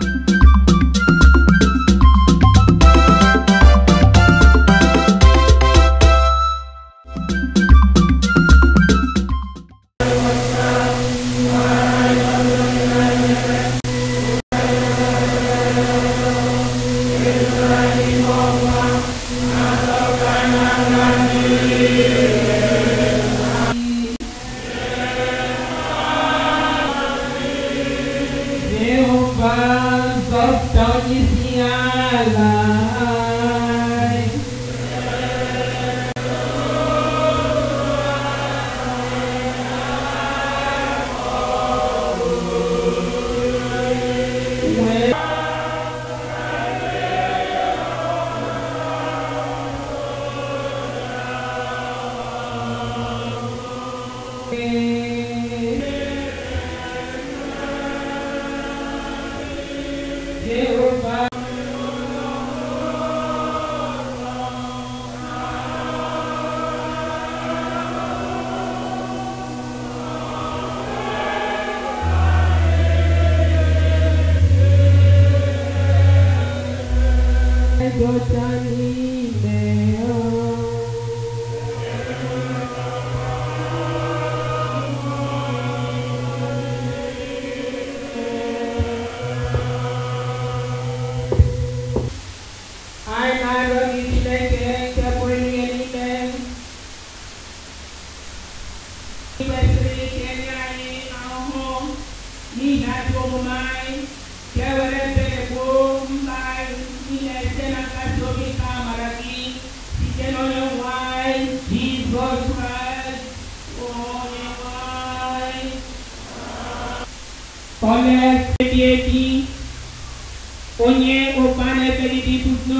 thank you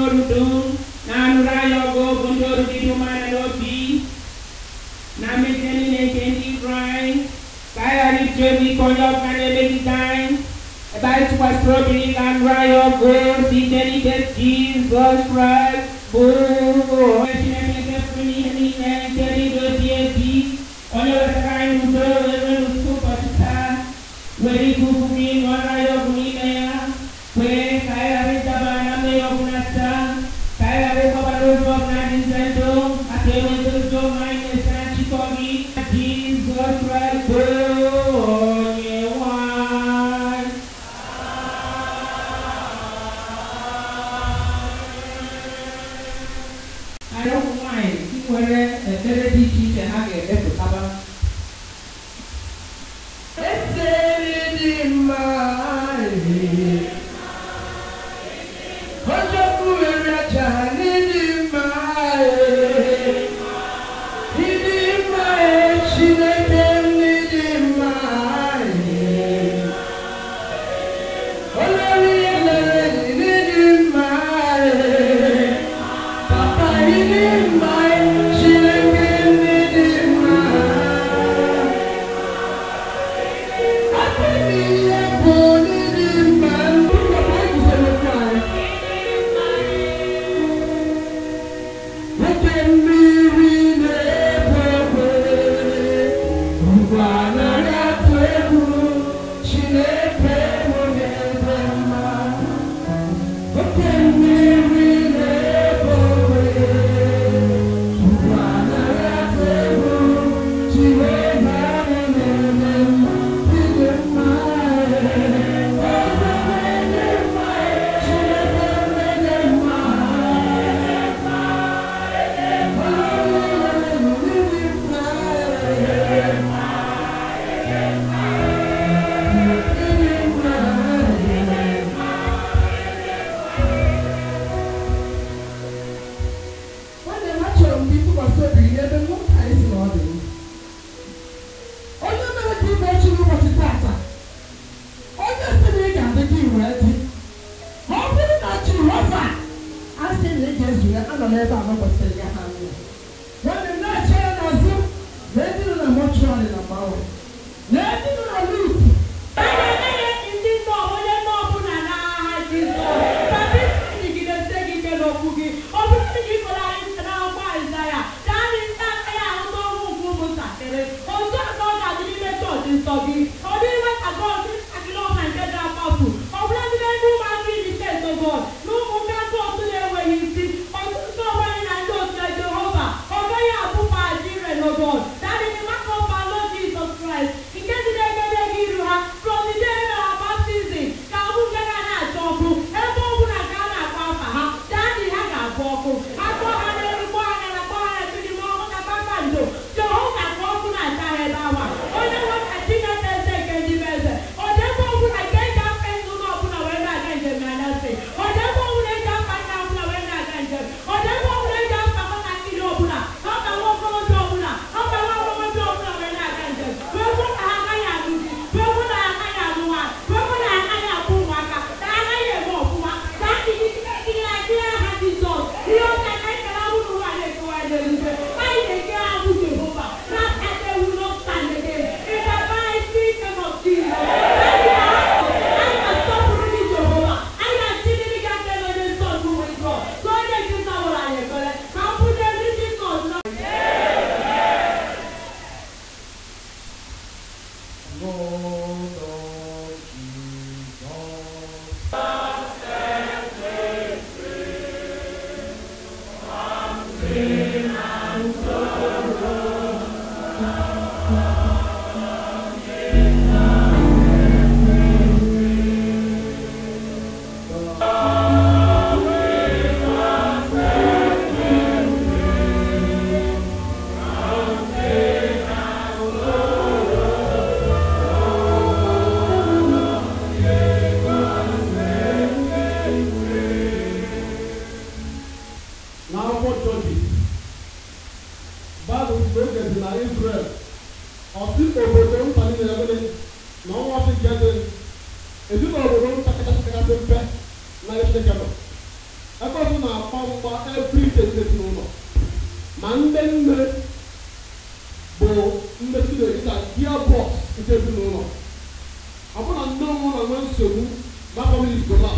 gontoru ɗum nanu rayogo gontoru ɗiɗumana ɗo bi namin tenine kendi dry kayari joni koyokane ɓeditan e ɓay tukastrobirilan rayogo si teni tet jesus christ boo pronto. Lord. ezinụlọ ọ bụrụ na ndị ọmụrụ na nwee nsogbu na-akpọghị igola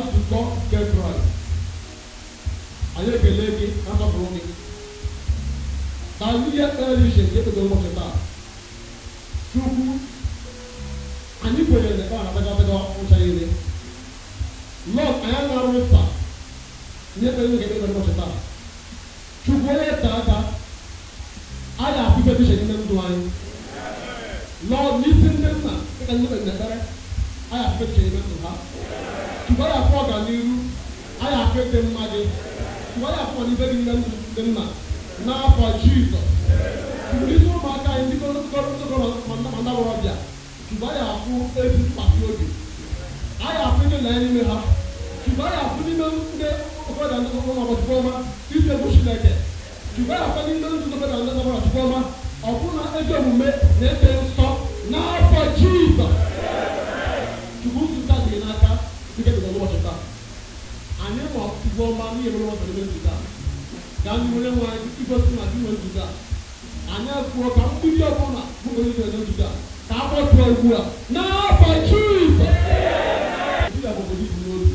how to God get right. Ayé kele mi, ká sọ fún mi. Tàbí yẹ ẹ́ rí ṣe kí ẹ tó tó lọ́mọ ṣe ọma ọbụna ezi omume na-ebe nsọ n'afọ jizọs chukwu nzụta dị n'aka dịka dị n'ụbọchị taa anyị ma ọtụtụ ọma n'ihe mere ọbụla ebe nzụta ka anyị nwere nwe anyị igosi na dị nwe nzụta anyị kwuo ka mgbidi ọbụla bụ onye nwere nzụta ka akpọtụ ugbu a n'afọ jizọs ndị agbụgbọ gị bụ n'obi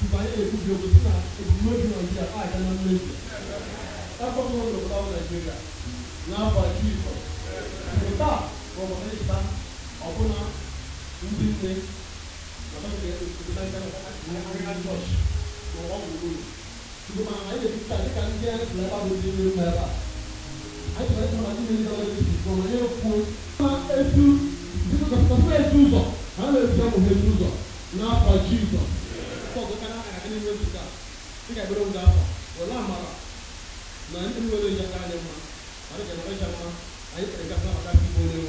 mgbe anyị ekwubi okwu sị na ebumnobi a aga na mmezu That's what we without Nigeria. Now by Jesus. Without Romanista, Abuna, Udine, Nigerian Church, for what we do. Ṣùgbọ́n àwọn ayé ti ta nípa ní ẹ̀rọ ìlẹ́bà ló dé nínú ẹ̀rọ. Ayé ìwé ìjọba ti ní ìjọba ti sùn wọn yóò fún. Ṣé etu ìdíkọ̀ kọ̀ọ̀kan fún etu zọ̀? Àwọn èèyàn ti sọ̀rọ̀ etu zọ̀ náà fà jí zọ̀. Ṣé ọ̀gbọ́n kan náà àyàkẹ́ nínú etu ká? Ṣé kàgbẹ́rẹ́ wù dáa fà? Wọ́n náà mara na ndị nwere onye ha anya mma ma a ga-enwe ya mma anyị kpere gafere maka ndị onye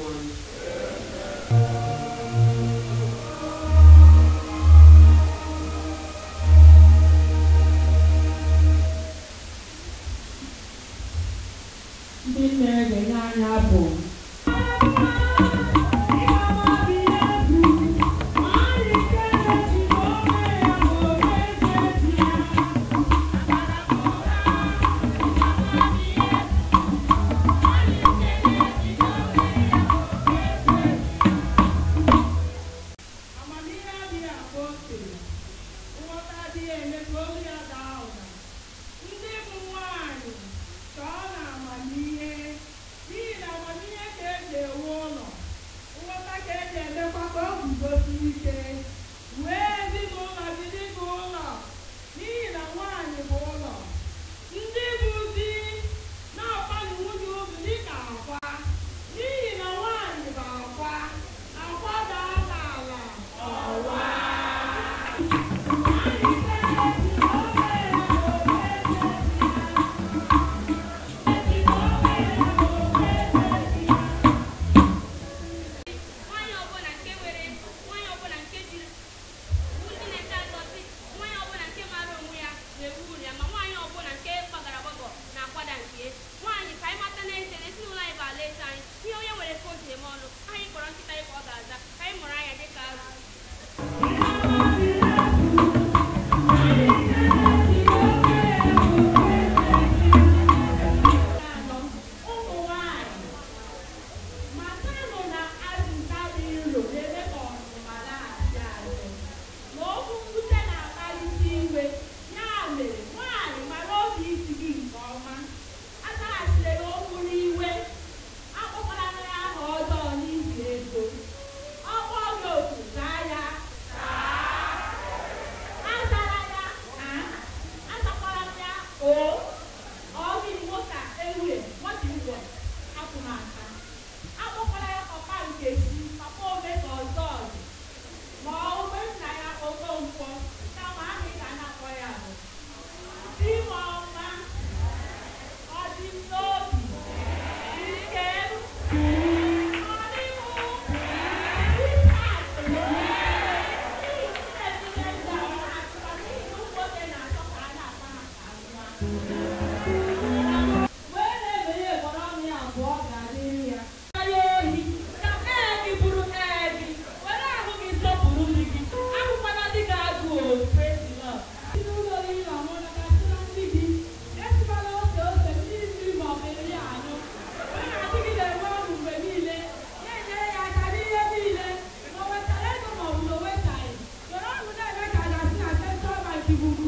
Mm-hmm.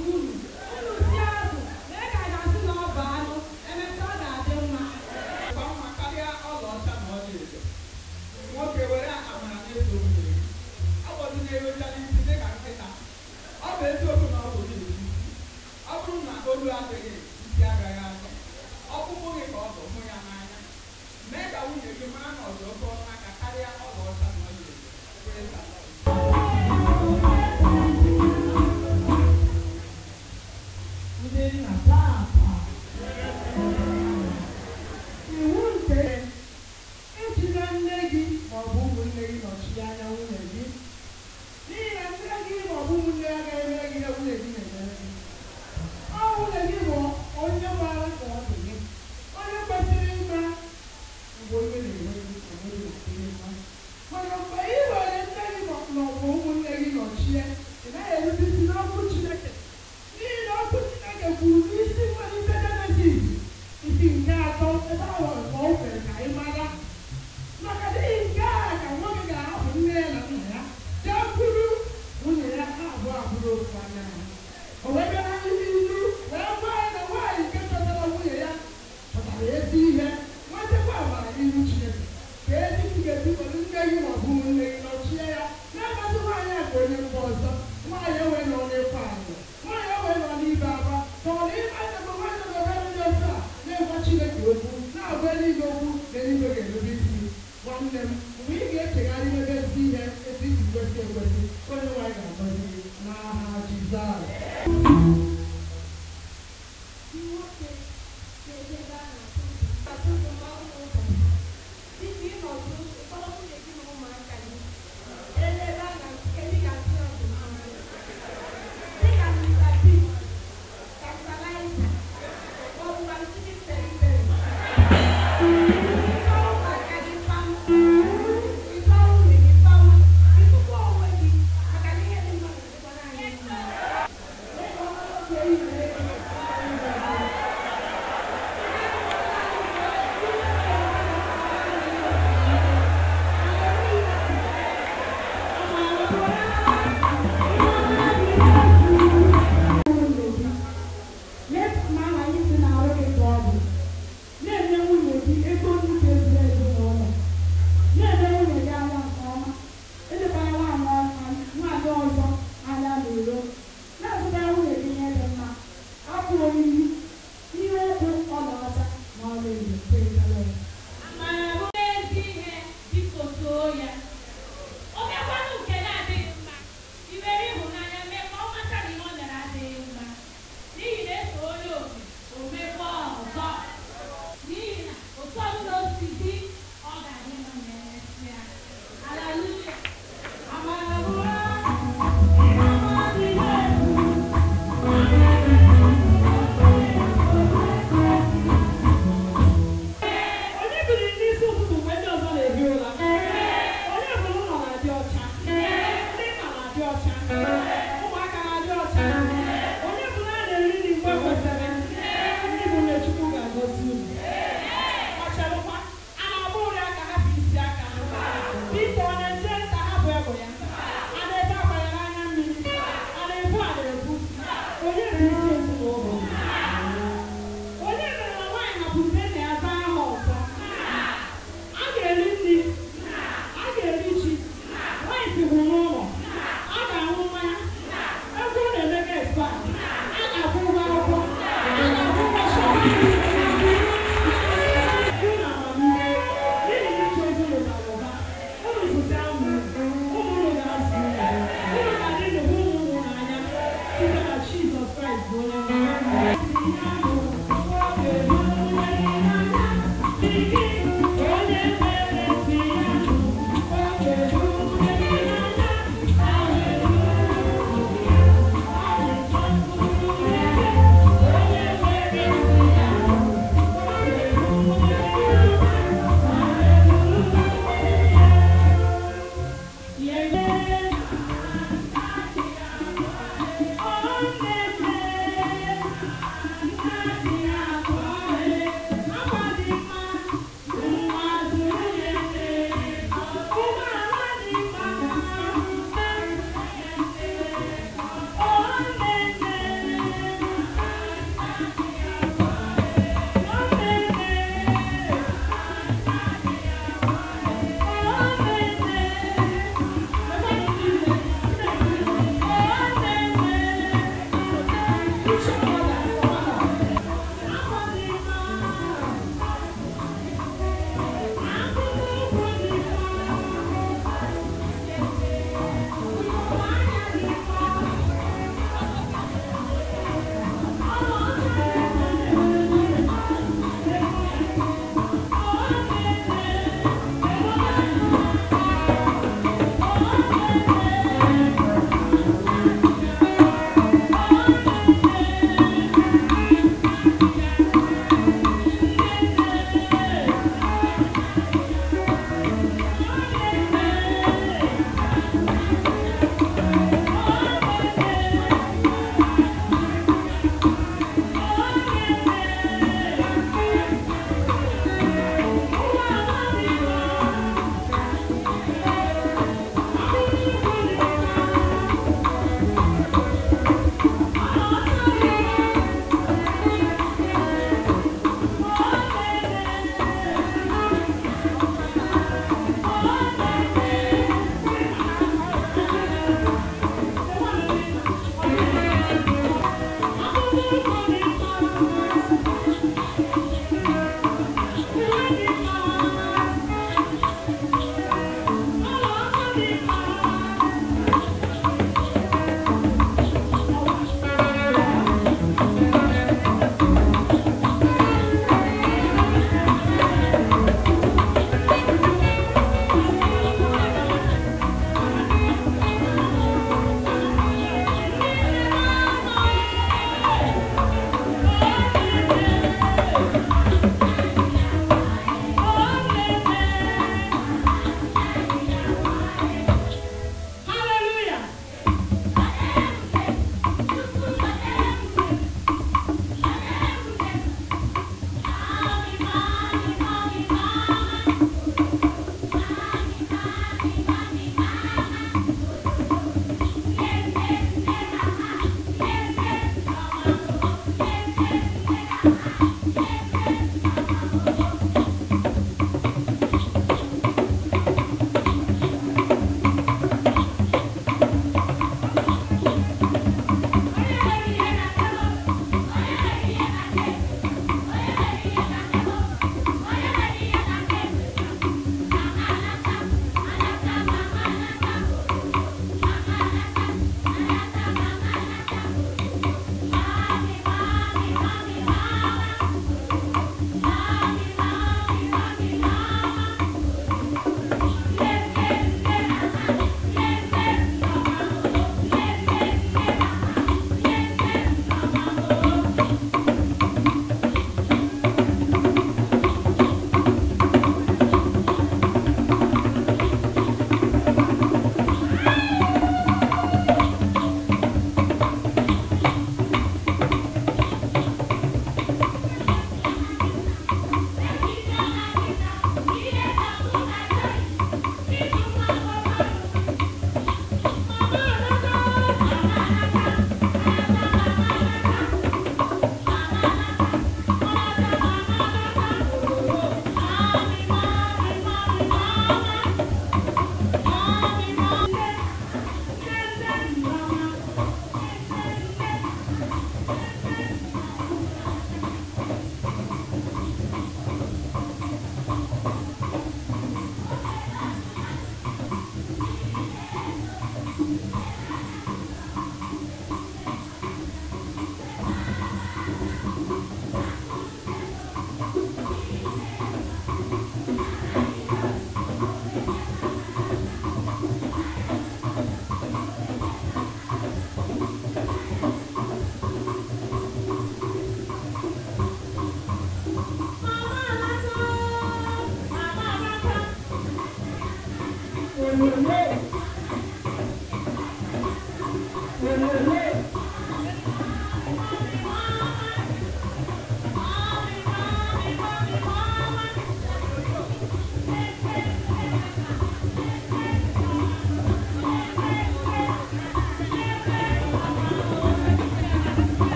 Thank you.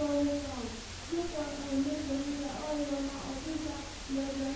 أطول القوم مثل أن يخرج الأرض وما أصيب